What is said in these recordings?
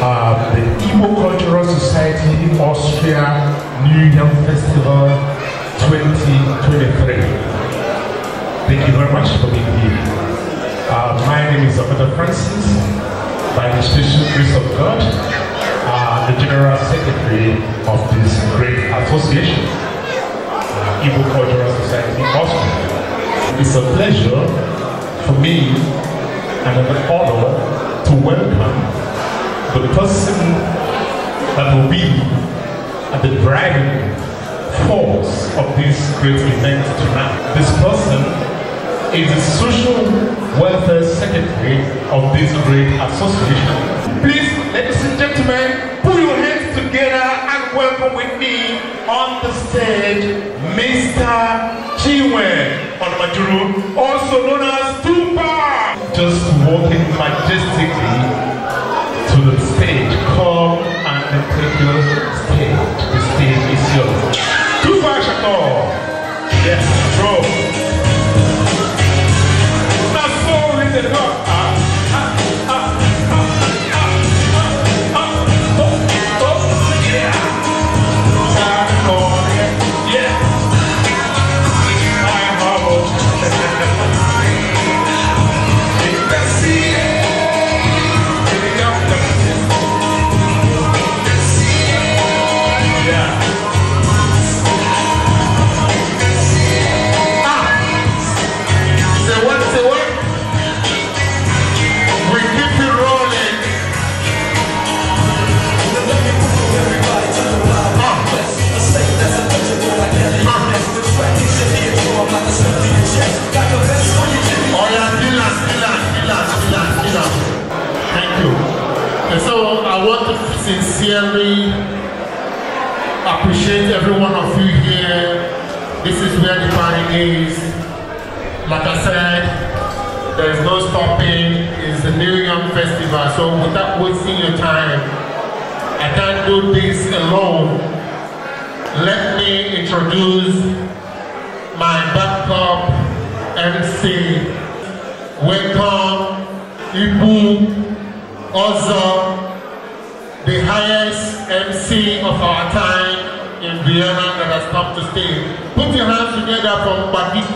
uh, the Igbo Cultural Society Austria New Year Festival 2023. Thank you very much for being here. Uh, my name is Dr. Francis, by the special Grace of God, uh, the General Secretary of this great association, uh, Igbo Cultural Society Austria. It's a pleasure for me and an honor to welcome the person that will be at the driving force of this great event tonight. This person is the social welfare secretary of this great association. Please, ladies and gentlemen, put your hands together and welcome with me on the stage, Mr. Chiwe Onmajuru, also known as Tupac. Just walking majestically the stage. Come and take your stage. The stage is yours. Too far, Shakur. Yes, bro. That's in the heart. sincerely appreciate every one of you here. This is where the party is. Like I said, there is no stopping. It's the New York Festival. So without wasting your time, I can't do this alone. Let me introduce my backup MC. Welcome, Ibu Ozo the highest MC of our time in Vienna that has come to stay. Put your hands together for Bagike.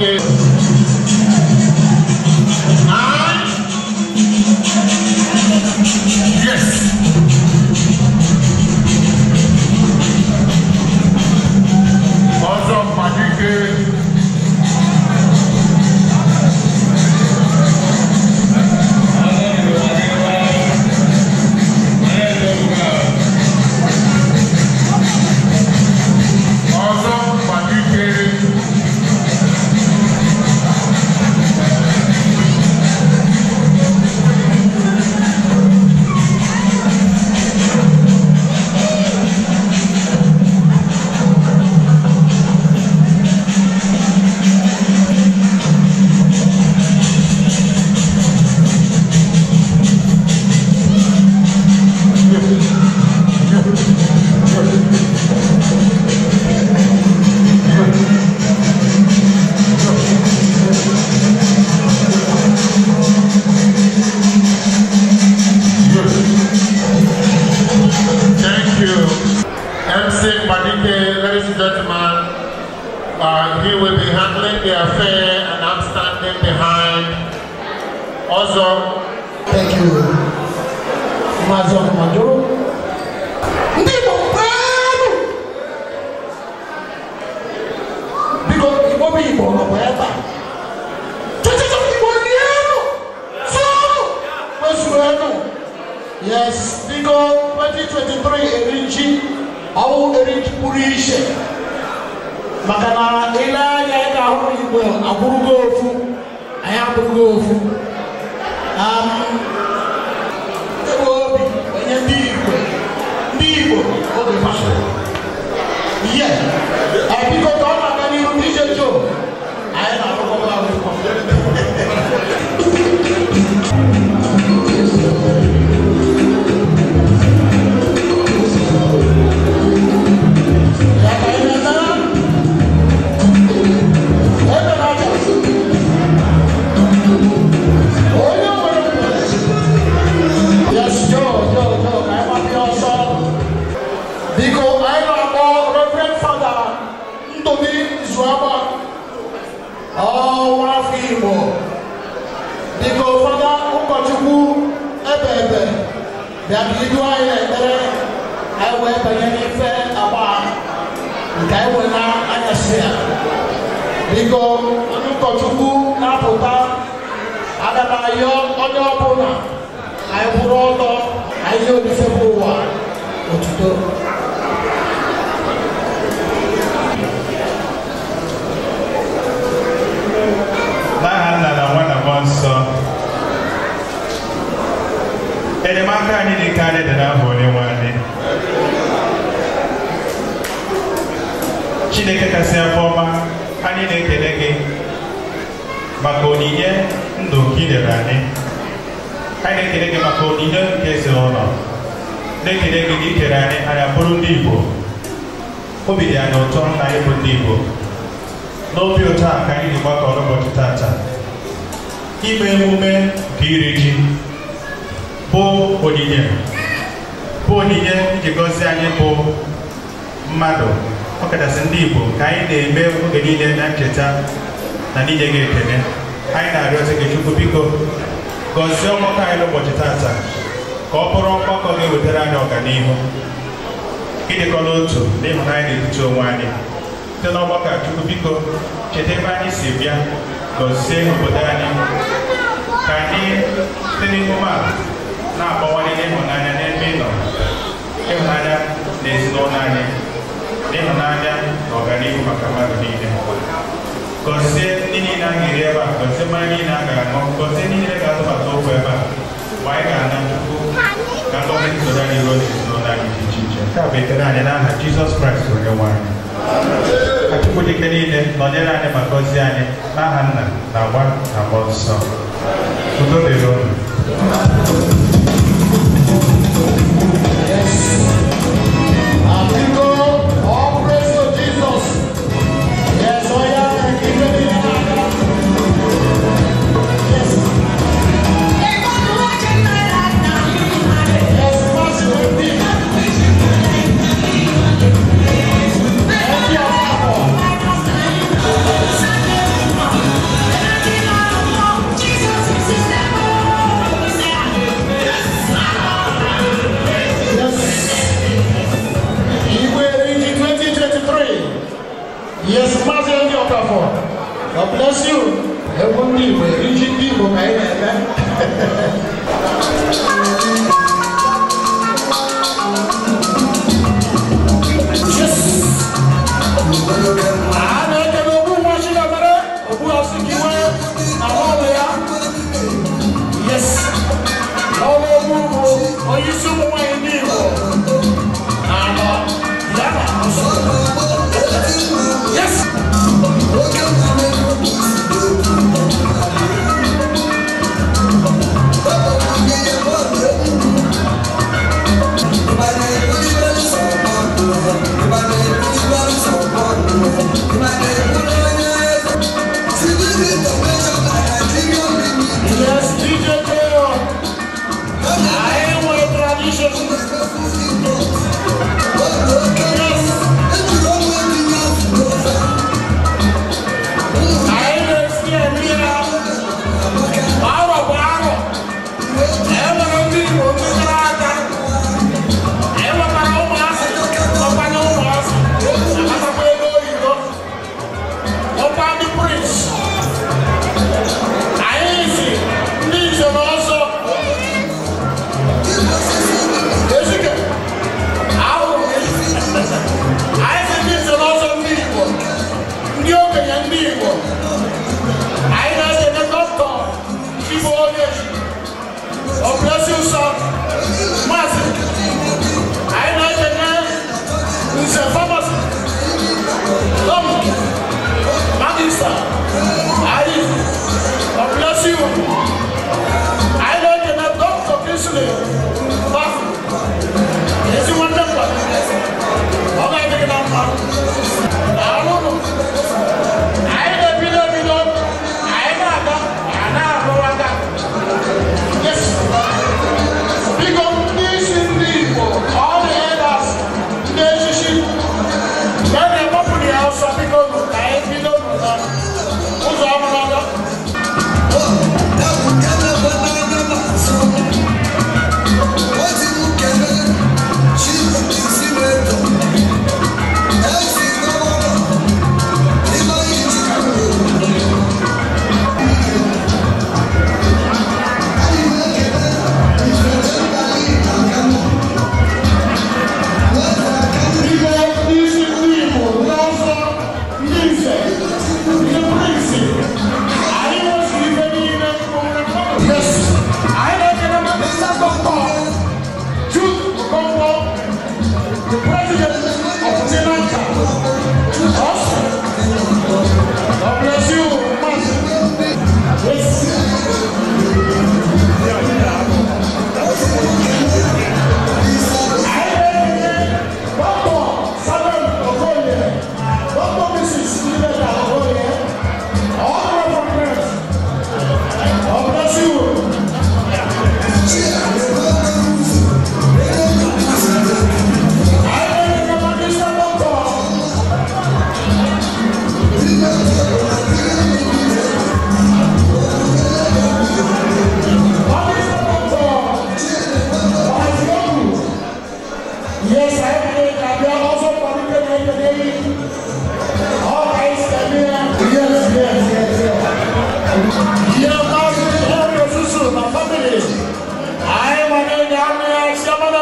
good.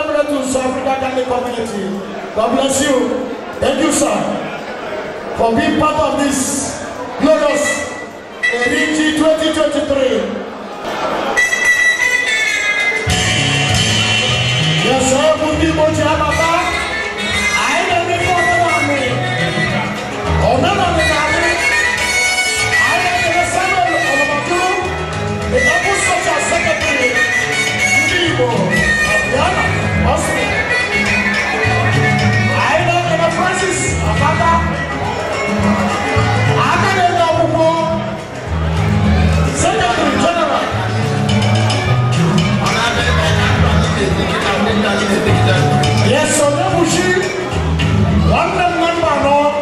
collaborate with Africa Ghana community. God bless you. Thank you, sir, for being part of this glorious Eriti 2023. Yes, sir, Mundi Mochi Ababa. Mushi, London Member,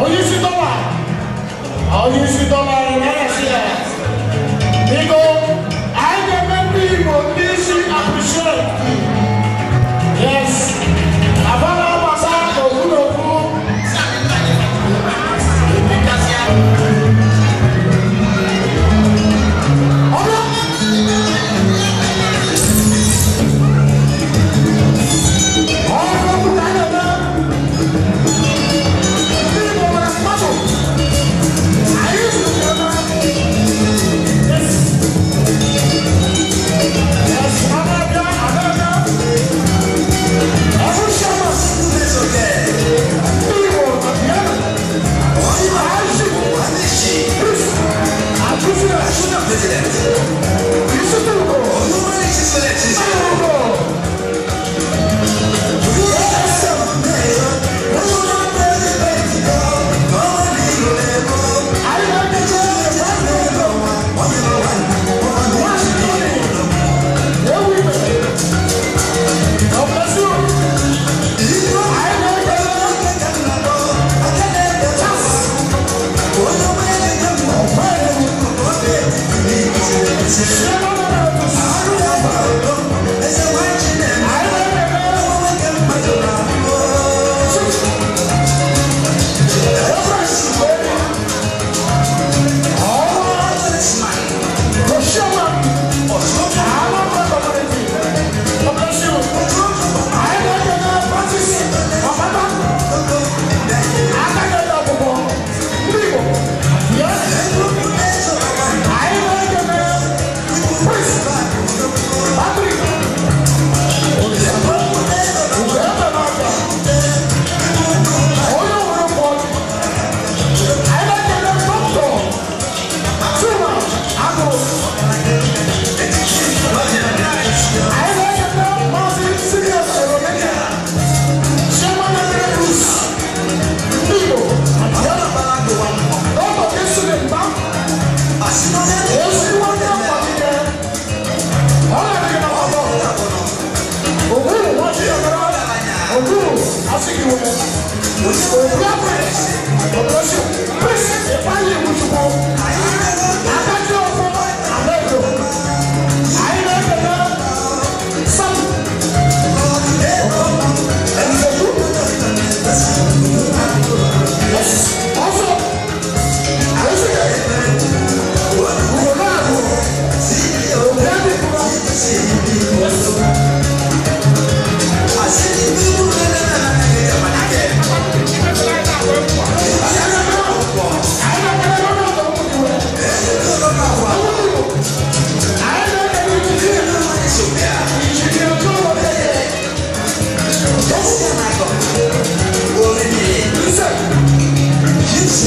Oyisi Dollar, Oyisi Dollar.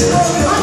Yes.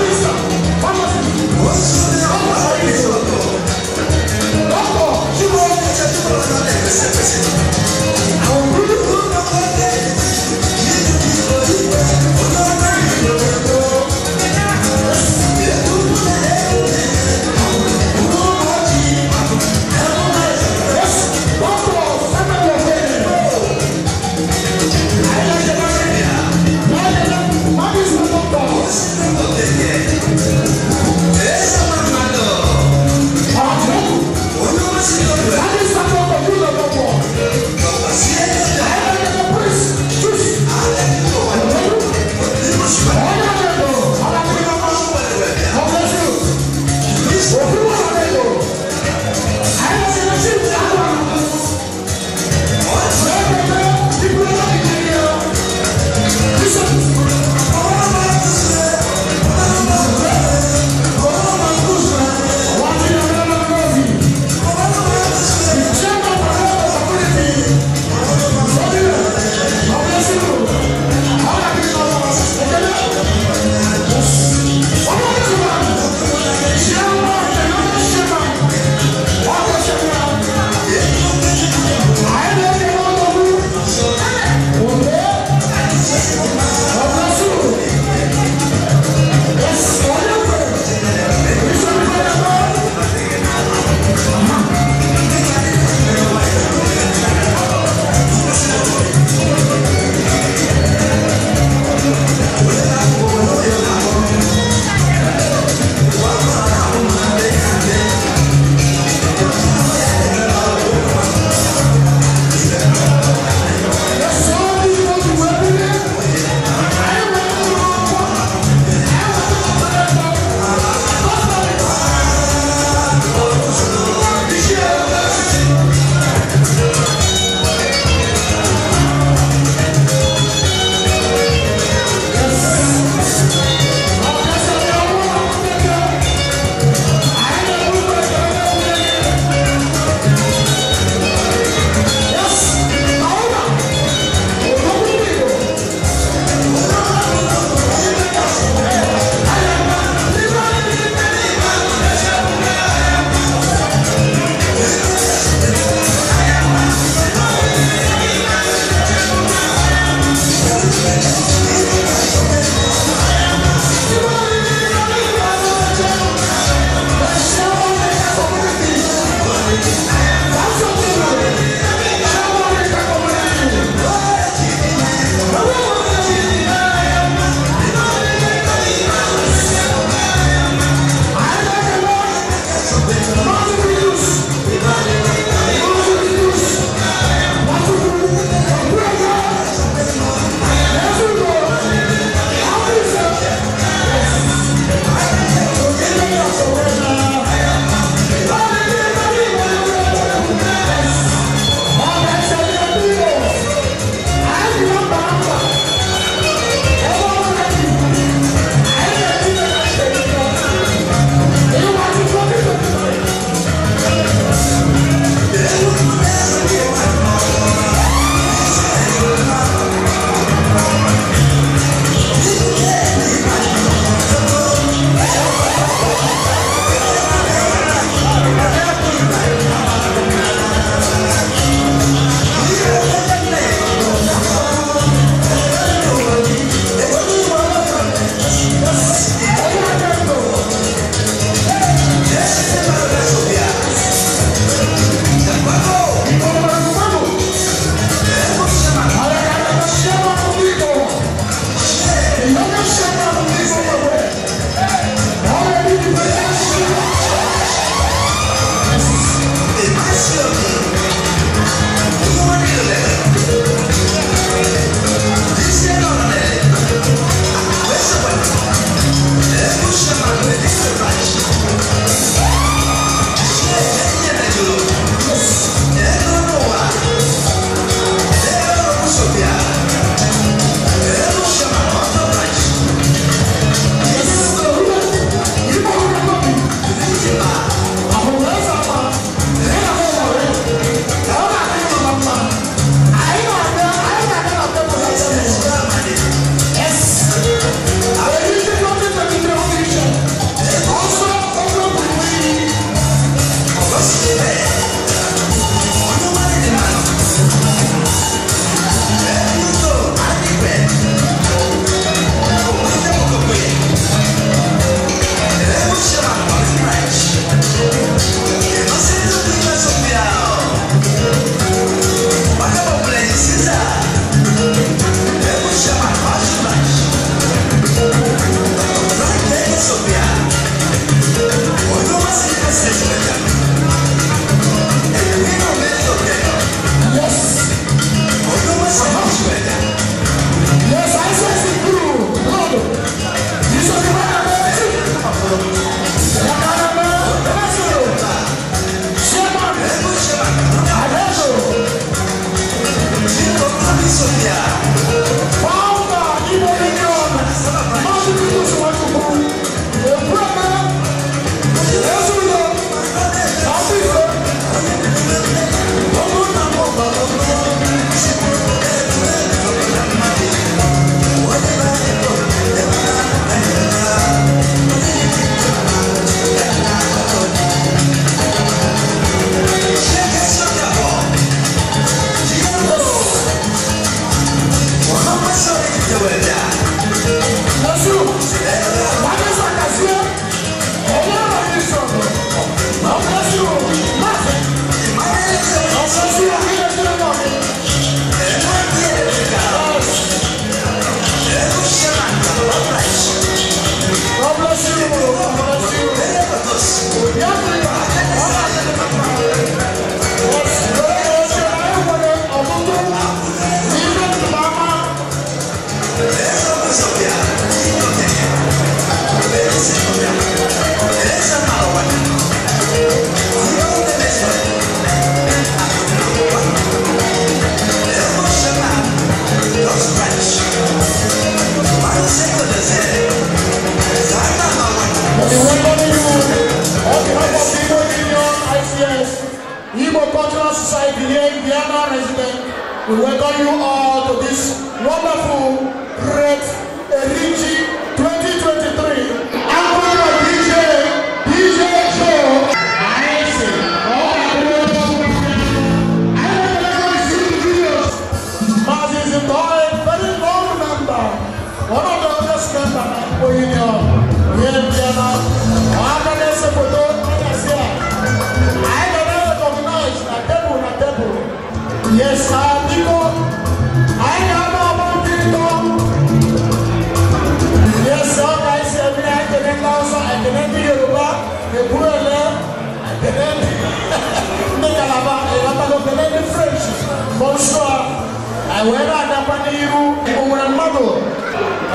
wera da paniru umuran madu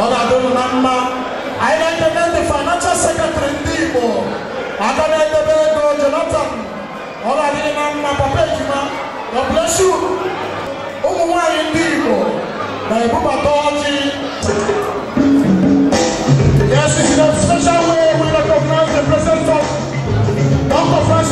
ola dun namma aina ite nende financial secretary ndibo aka nende bego jonathan ola dini namma papa ejima god bless you umu nwanyi ndibo na ebubata ọjị yes a special way we recognize the presence of dr frank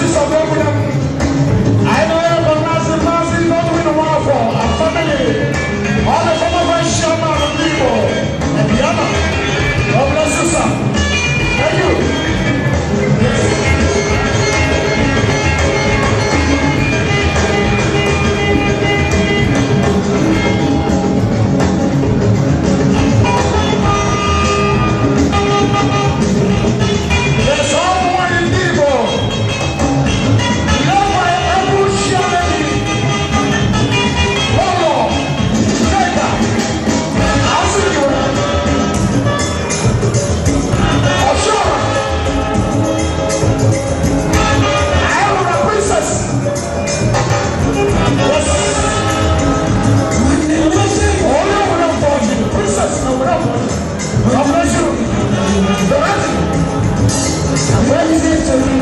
victory.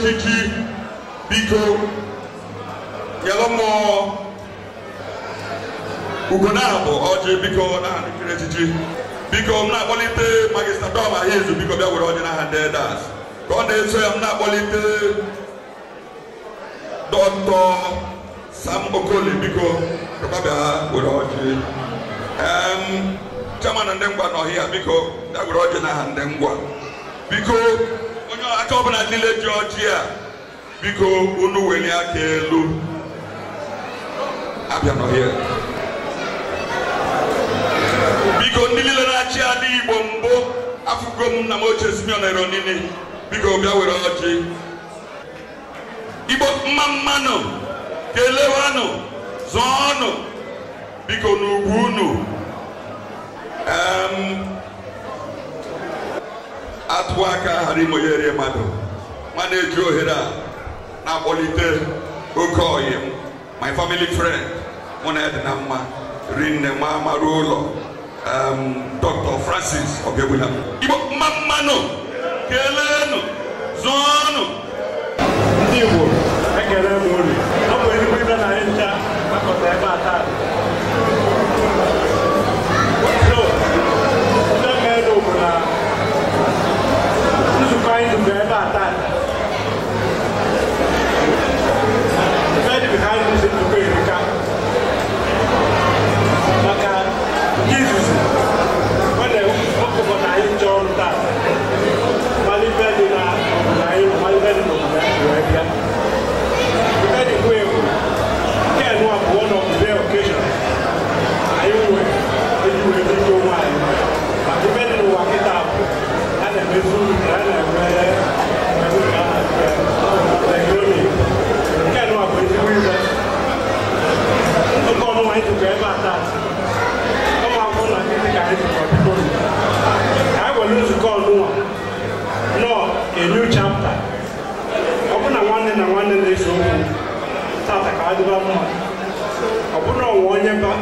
echichi biko nyelụ mmụọ abụ ọjị biko n'aha nkiri echichi biko m na-akpọlite magista dọm ahizu biko bịa were ọjị n'aha ndị edas ka ọ na-eso ya m na-akpọlite dọtọ sam okoli biko bịa were ọjị Chama na ndị ngwa n'ọhịa biko bịa were ọjị n'aha ndị ngwa biko aka ọbụla niile dị ọjị a biko unu welie aka elu abịa n'ọhịa biko ndị niile na-achị adị igbo mbụ afụgo m nna m na Simeon Eronini biko bịa were ọjị igbo mma mmanụ kelewanụ zọọnụ biko n'ugwu unu atụwa aka ghara imeghere mmadụ ma na-eji ohere a na-akpọlite oke oyi m my family friend mụ na edina mma rinne ma mara ụlọ dr francis ogebula igbo mma mmanụ keleenụ ọnụ. ndị igbo ekele m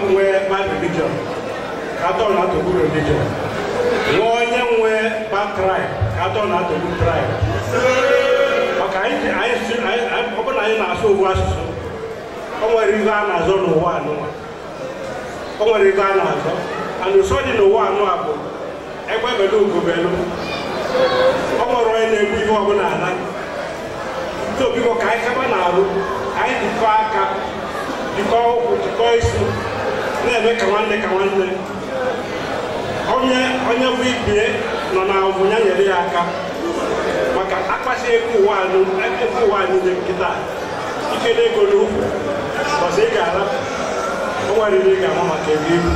m nwee religion ka na-atọgbu religion nwa onye nwe ma na-atọgbu tribe maka ọ anyị na-asụ owu asụsụ o nwere a na-azọ n'ụwa anụwa o nwere a na-azọ dị n'ụwa anụ a bụ egbebelu ugobelu ọ nwere onye na-egbu ihe ọbụla ala ntobiko ka anyị kaba na-arụ anyị dịkọọ ana eme ka nwanne ka nwanne onye onye bụ ibie nọ na ọbụnya nyere ya aka maka akpasi ego ụwa ego ụwa niile nkịta ike n'ego n'ukwu ọsọ ị ga-ala o nwerịrị ị ga-ama maka ego ibu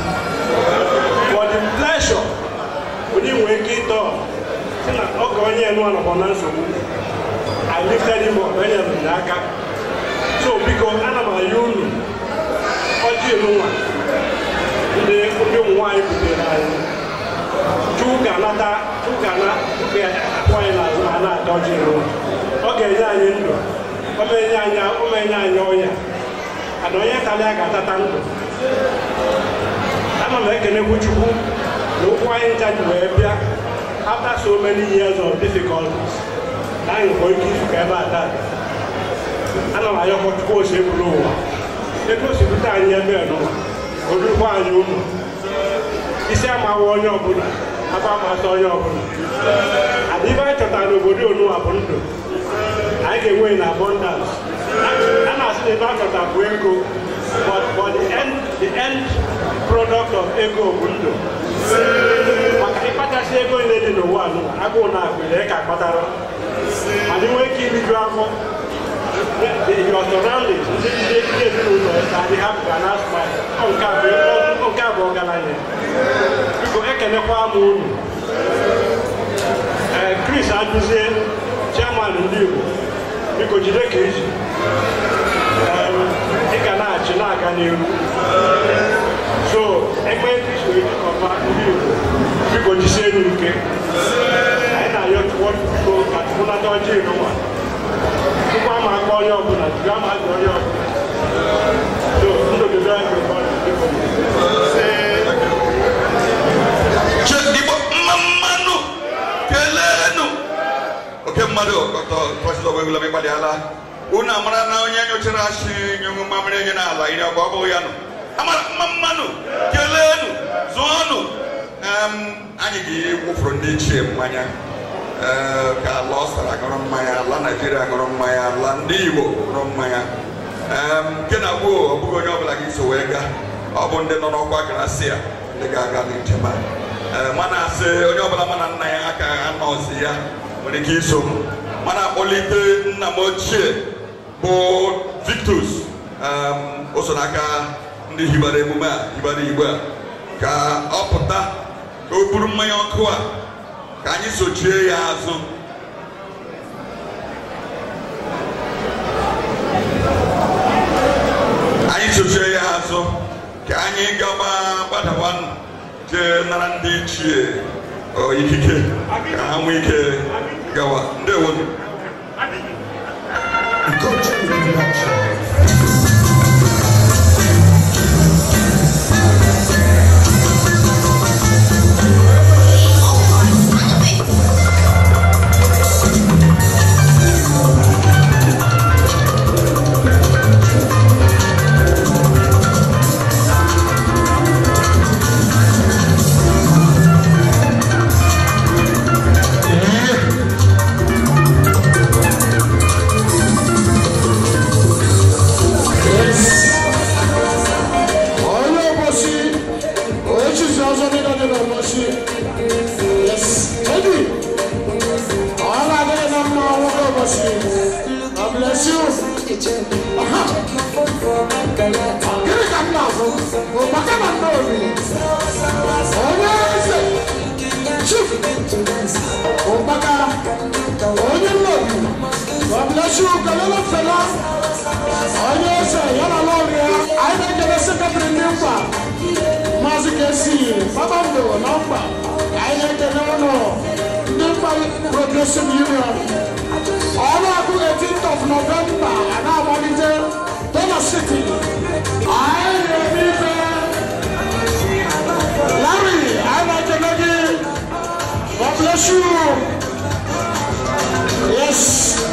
for the pleasure onye nwee ike ịtọ sị na oge onye nụ nọkwa na nsogbu I lifted him up onye nụ n'aka so biko ana m ayọ unu ọjị elu nwa ndị ụmụ nwaanyị butere anyị Chukwu ga-anata Chukwu ga-akpụ anyị n'azụ ma na-ata ọjị ọ ga-enye anyị ndụ ọ anya enye anya ọ na-enye anyị ọnya ana onye karịa ga-atata ndụ ana m ekenekwu Chukwu na ụkwụ anyị ncha ji wee bịa after so many years of difficulties na anyị nwere ike izukọ ebe a taa ana m ayọkọ Chukwu ose buru ụwa ego o bute anyị ebe a n'ụwa o anyị ụlọ isi amawa onye ọbụla aba amata onye ọbụla adị ibe anyị chọtara obodo onuwa bụ ndụ anyị ga-enwe na abundance a na-asị na ebe a chọta bụ ego but for the end the end product of ego bụ ndụ maka ịkpachasị ego niile dị n'ụwa agụụ na akụ ka kpatara ma dị nwee ike iriju afọ if you are surrounded ṣé ṣe ṣe ṣe o lọ ẹ̀ka they have Ghana smile ọ̀nka àbọ̀ ọ̀nka àbọ̀ ọ̀gana yẹn bíkọ ẹ̀kẹ́ni kọ́ àmọ́ ònù ẹ̀ Chris Adúzé chairman ndị Igbo biko jide ka eji ị ga na-achị na-aga n'ihu so egbe kristo ejikọba ndị Igbo biko jisie n'ike anyị na-ayọ chụọ chukwu ka chukwu nata ọjọọ ịnụnwa Tupu ama akpọ onye ọbụla, jiri ama aja onye ọbụla. So, ndụ gị bịa nke ụfọdụ ndị Chedigbo mma mmanụ kelenu oke ya nụ amara mma mmanụ kelenu zụọnụ anyị ga ka ala ọsara mmanya ala naijiria aṅụrụ mmanya ala ndị igbo aṅụrụ mmanya nke na agbo ọ bụghị onye ọbụla gị so wee gaa ọ bụ ndị nọ n'ọkwa gracia ndị ga-aga n'ijema mana asị onye ọbụla mana nna ya aka ha nọzi ya nwere ike iso m mana akpọlite nna m ochie bụ victus o so n'aka ndị hibara emume a hibara Igbo a ka ọ pụta ka o buru mmanya ọkụ a ka anyị sochie ya azụ anyị sochie ya azụ ka anyị gaba gbadawa jee nara ndị ichie ikike ka ha nwee ike gawa ndewo Go to the yesu galelo fela ɔnye sɛ yɛla lɔɔre a ayi na gɛlɛ sɛ kabiri ne mfa maasi kɛsi baba na mfa ayi na gɛlɛ ɔnɔ ne mfa progressive union ɔno ako eighteenth of november ana amadite dɔla city ayi na ebi fɛ lari ayi na gɛlɛ bi god bless you yes.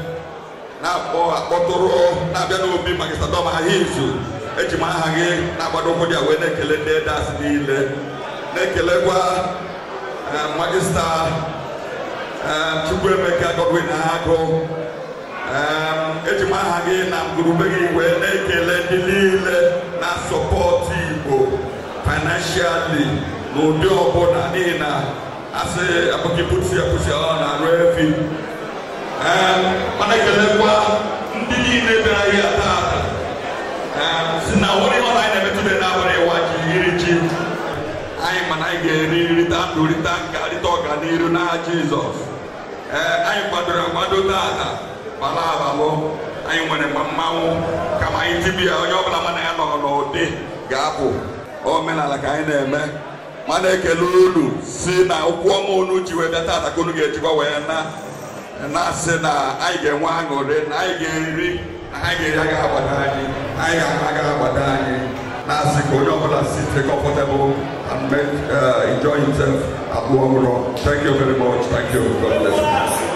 akpọ akpọtụrụ na-abịa n'obi magistadọm ahịa izu eji m aha gị na-agbado ụkwụ dị wee na-ekele ndị edas niile na-ekelekwa e, magista e, Chukwuemeka Godwin Agụ e, eji m aha gị na ngurube gị wee na-ekele ndị niile na sọpọtụ Igbo financially n'ụdị ọbụla n'ihi na asị abụghị pusi apụsi ọ na-arụ efi Eh, mana ekelekwa ndị niile bịara ahịa taata eh, si na nwere ihe anyị na-emetụta n'abalị ịwa ji iri ji anyị mana anyị ga-eri nrita nke rita nka n'iru na n'aha jizọs ee eh, anyị gbadoro akwado taata bala abalụ anyị nwere mmanwụ kama anyị tibia onye ọ bụla mana ya nọ n'ụdị ga-apụ omenala ka anyị na-eme mana ekele unu si na ụkwụ ọma unu ji taata ka unu ga-ejikwa wee na na-asị na anyị ga-enwe aṅụrị na anyị ga-eri na anyị ga-eri agaghị agbada anyị anyị ga-ahụ agaghị anyị na-asị ka onye ọbụla sit comfortable and make uh, enjoy himself abụọ ọhụrụ thank you very much thank you god bless you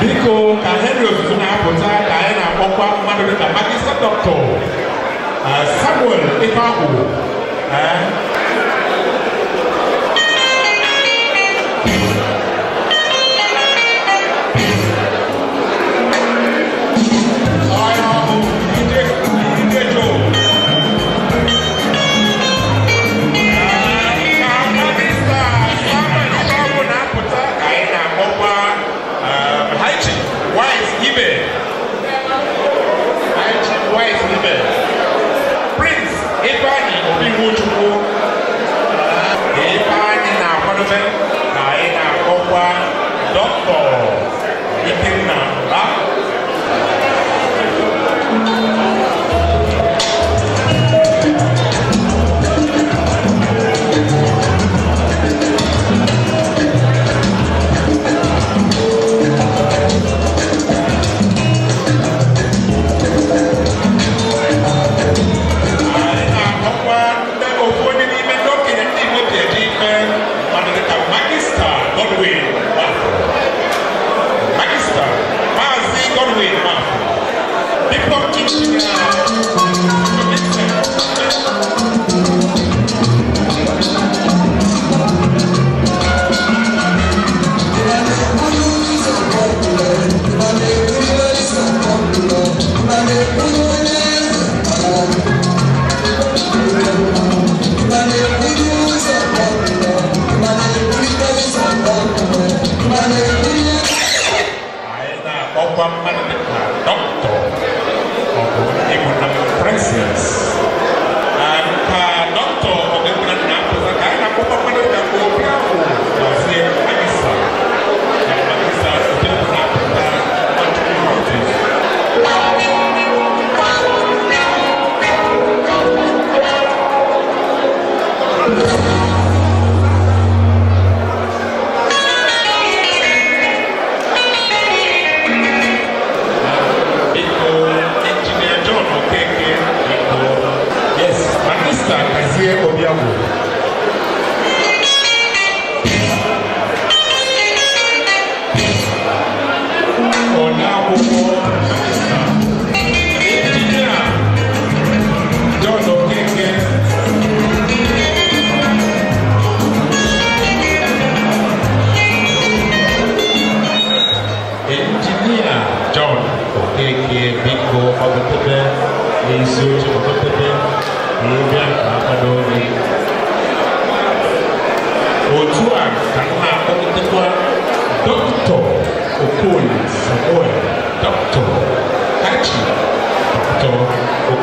biko ka henry ozuzo na-apụta ka anyị na-akpọkwa mmadụ dịka magista dọkịta eh, samuel ifeakwụ eh.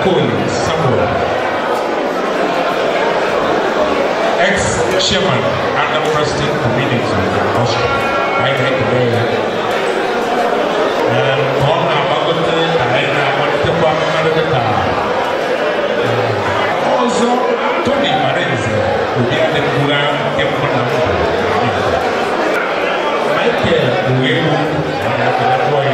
Akon Samuel, ex-chairman and president of Meetings the Russia, I think today. And on our Bagota, Diana, Mantepa, Margata, uh, also Tony Marenzi, who did the Kula, Kempa, Michael Uwebu, and Akon Akon.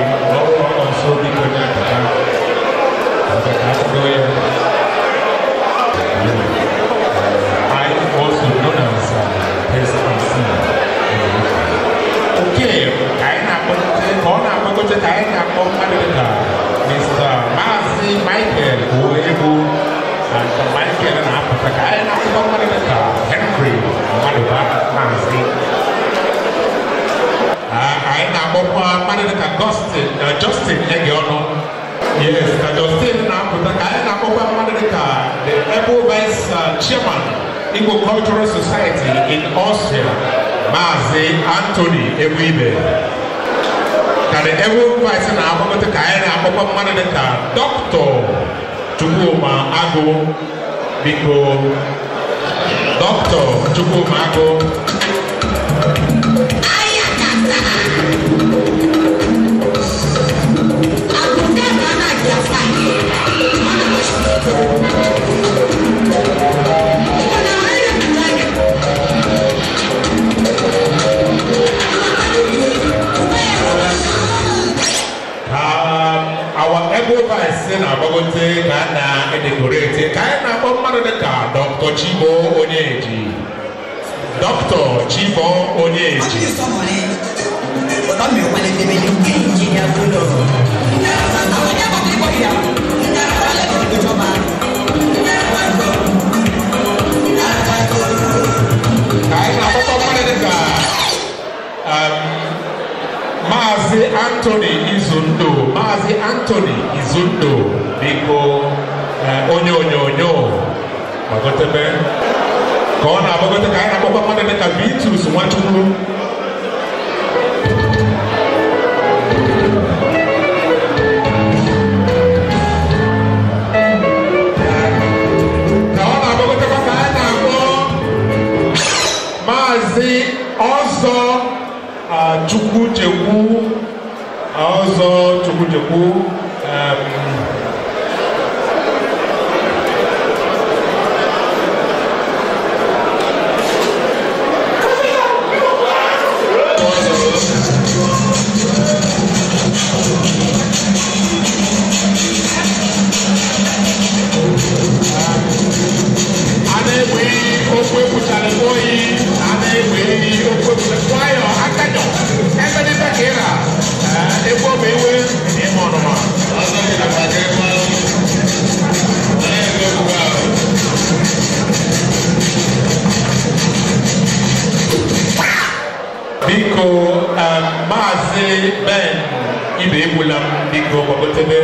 Kotekaeta Komadeka, Mr. Masi Michael Ulebu, and Michael and Apotekaeta Komadeka, Henry Maduba Masi. Aina Bopa Madeka Justin, uh, Justin Egiono. Yes, uh, Justin Apoteka, Aina Bopa Madeka, the Ebo Vice uh, Chairman, Igbo Cultural Society in Austria, Mazi Anthony Ewibe. kare ewu paisa na amamata ka anyị na-akpọkwa mmadụ dịka dọkịta Chukwuma Agụ biko dọkịta Chukwuma Agụ Thank you. device na agbago ntị a na-edekoreti ka anyị na-akpọ mmadụ dịka dọkta chibo onyeji dọkta chibo onyeji ka anyị na-akpọkọ mmadụ dịka Maazị Anthony Izundo Maazị Anthony Izundo biko onye onyonyo gbagotebe ka ọ na-agbagote ka anyị na-akpọkwa mmadụ dịka Vitus Nwachukwu Maazị Ọzọ Chukwuchekwu 나와서 조금 적고 ben ibe egwula biko gbagotebe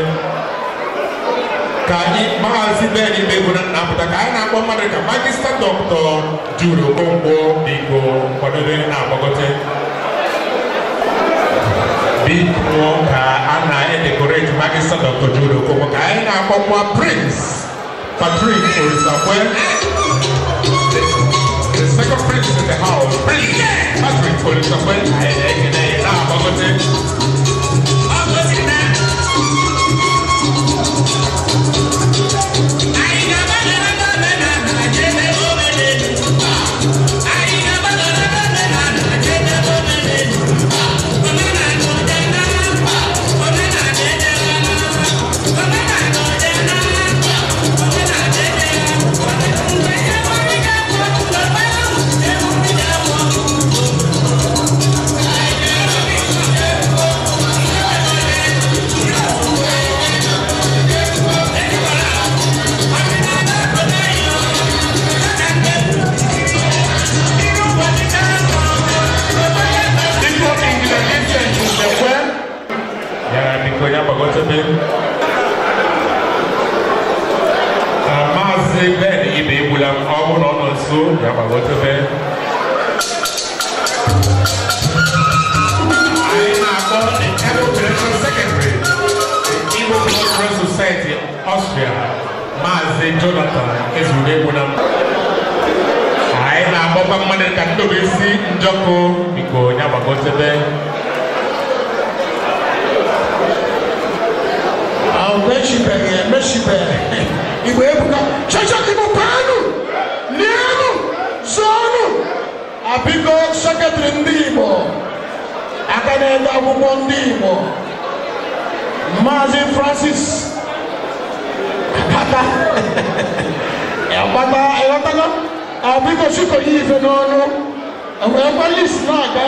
ka anyị maazi ben ibe egwula na-apụta ka anyị na-akpọ mmadụ ka magista dọktọ juru okonkwo biko kwadobe na-agbagote biko ka ana e decorate magista dọktọ juru kombo. ka anyị na-akpọ prince patrick orisakwe eh? the second prince in the house prince patrick orisakwe anyị eh, na-ekene eh, government ìjàpá wọ́n tó fẹ́. ayé máa kọ́ the Federal Federation Secretary the Igbo Cultural Society Austria Maazị Jonathan Ezure Wunam. ayé na-agbọkwa mmadụ ka ndị obi si njọkụ biko onye agbagotebe. Meshibe, meshibe, Igbo ebuka, chọchọ Igbo paanụ. abiko sekretari ndị igbo aka na-ede akwụkwọ ndị igbo francis akpata akpata ịghọtago abiko chikoye ife n'ọnụ enwerekwa list na-aga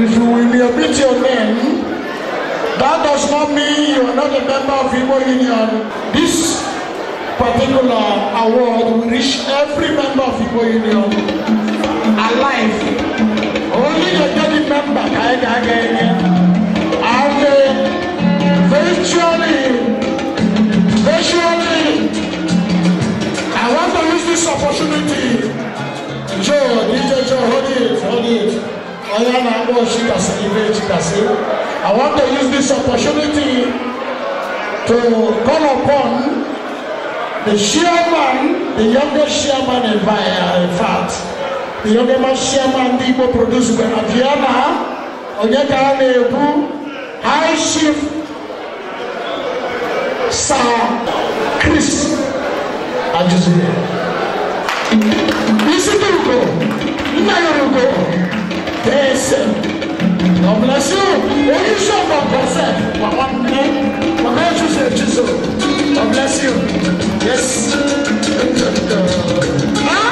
If you will be a bit your name, That does not mean you are not a member of Igbo Union. This particular award will reach every member of Igbo Union alive. Only the daily member can get it. And uh, virtually, virtually, I want to use this opportunity. Joe, DJ Joe, hold it, hold it. Oya na worship and celebrate Chikasi. I want to use this opportunity to call upon the chairman, the youngest chairman in, by, uh, in fact, the youngest chairman Igbo produced when Aviana Onyeka Nebu, High Chief Sir Chris Ajuzule. Isi Dugo, Nna Yorugo tẹ̀sẹ̀ ọ̀bùnàṣù oníṣẹ́ ọ̀nà ọ̀kọ̀ọ̀sẹ̀ wà wà ní wà náà tún ṣe ètí so ọ̀bùnàṣù yẹsì ẹ̀jẹ̀ náà.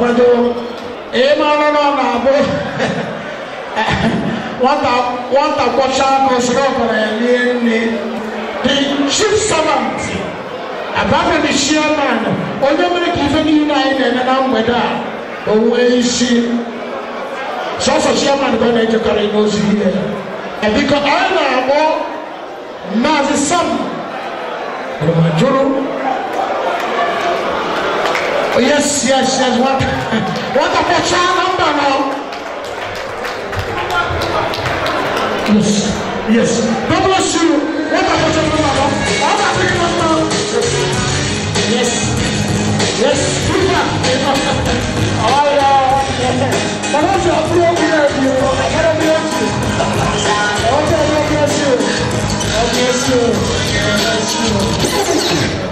kwado ịma ọrụ n'ọ na-abụ wata wata bɔhyɛ akɔsoro ɔkɔlɛɛni ɛni di chief servant abaafɛ di chairman onyamiri kìfɛ ni yina ayi na ɛnana mgbɛda a owu eyi si sɔsɔ chairman bɛ na ɛdi kɔrɔ ɛna osi yɛ ɛbi kɔ ayi na abɔ maazi sam ɔmaduro oh, yes yes yes wata wata bɔhyɛ anamba na. Yes. Yes. God bless you. What about you, Mama? All African Mama. Yes. Yes. Super. All right. But also, I'm going to be I got be here. I want bless you. God bless you. God bless you.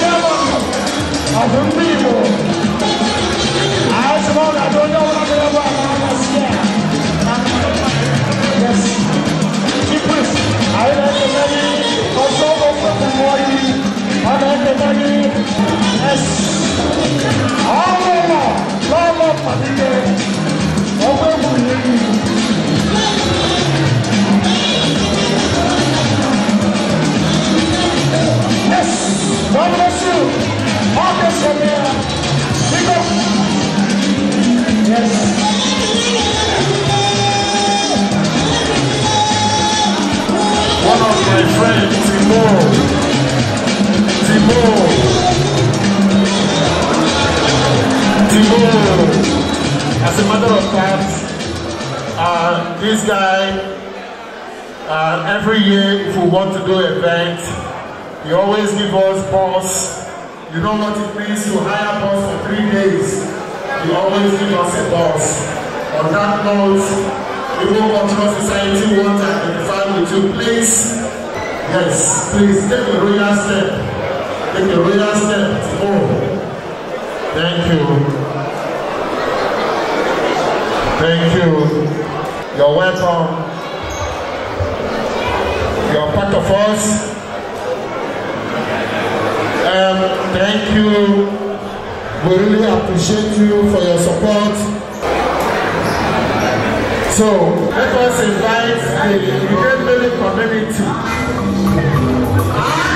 Llaman I suppose I do I'm going to I'm not scared. Yes. Keep this. I am the money. I like the money. Yes. All over. Love up, my dear. God bless you. God bless you, man. Pick Yes. One of my friends, Timo. Timo. Timo. As a matter of fact, uh, this guy, uh, every year if we want to do events, You always give us pause. You know what it means to hire us for three days. You always give us a pause. On that note, the World Cultural Society wants to identify with you. Please, yes, please take a royal step. Take a royal step to go. Thank you. Thank you. You're welcome. You're part of us. Thank you. We really appreciate you for your support. So, let us invite the United Community.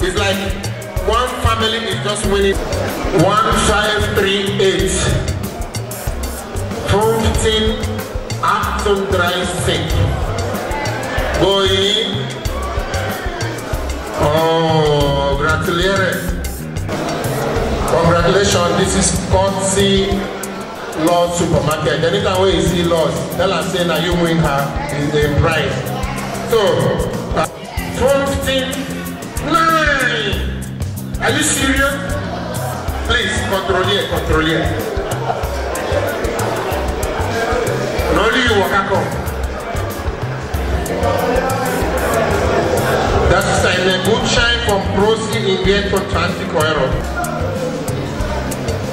It's like one family is just winning. One five three eight. Fifteen Acton Drive sink. Going. Oh, gratuleres. Congratulations, this is courtesy Lord Supermarket. Anytime we see Lord, tell us say that you win her in the prize. So, uh, 15 Are you serious? Please, control here, control here. And only you walk come. Das ist ein Gutschein vom Prosi in Wert von 20 Euro.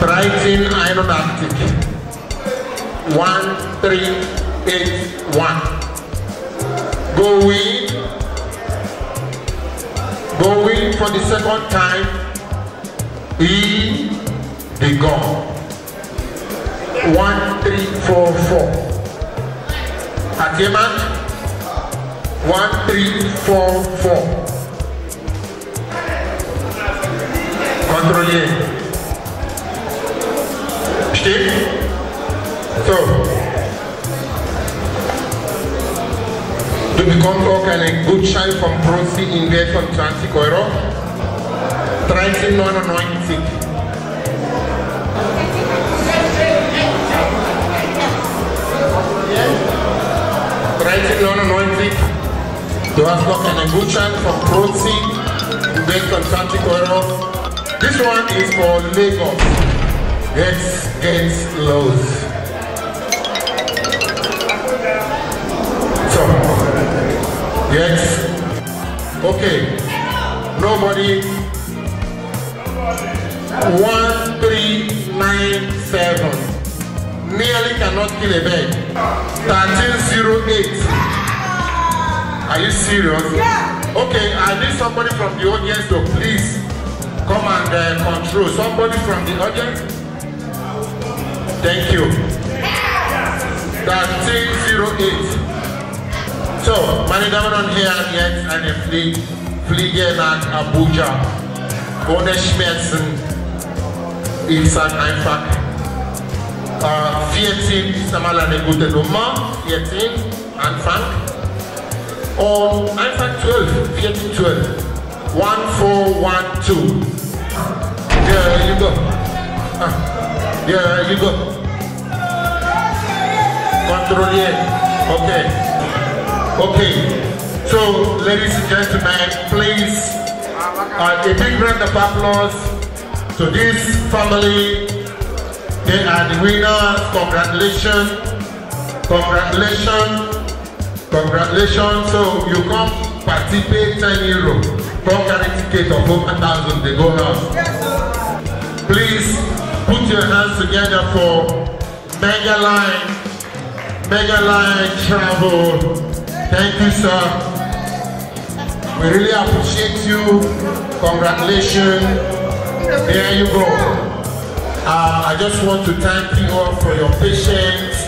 1381. 1381. Go in. Go in for the second time. E the God. One three four four. At Yemat. One three four four. Kontrollieren. Stimmt? So. Du bekommst auch einen good vom from Invest von 20 Euro. 1999. Du hast noch einen Gutschein from Prozi, to make an 20 Euro. This one is for Lagos. Yes, against Los. So, yes. Okay. Nobody 1397. Nearly cannot kill a bird. 1308. Are you serious? Yeah. Okay, I need somebody from the audience to please come and uh, control. Somebody from the audience. Thank you. 1308. So, meine Damen und Herren, jetzt eine Fliege, Fliege nach Abuja. Ohne Schmerzen ist halt einfach äh, uh, 14 ist einmal eine gute Nummer, 14 Anfang und einfach 12, 14, 12, 1, 4, 1, 2. Yeah, you go. Ah. you go. Kontrollieren. Okay. Okay. So, ladies and gentlemen, please, uh, a big round of applause to this family. They are the winners. Congratulations. Congratulations. Congratulations. So you come participate 10 euro. from carry ticket of 1,000. They go now. Please put your hands together for Mega Line. Mega Line Travel. Thank you, sir. We really appreciate you. Congratulations. There you go. Uh, I just want to thank you all for your patience.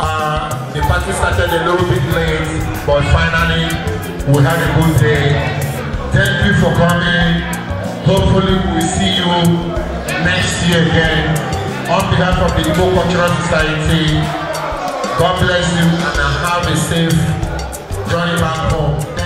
Uh, the party started a little bit late, but finally we had a good day. Thank you for coming. Hopefully we'll see you next year again. On behalf of the Igbo Cultural Society, God bless you and have a safe journey back home.